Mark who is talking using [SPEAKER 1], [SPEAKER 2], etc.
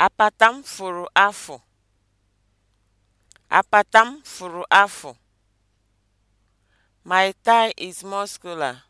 [SPEAKER 1] Apata furu afọ, apatam furu afọ, My thigh is muscular.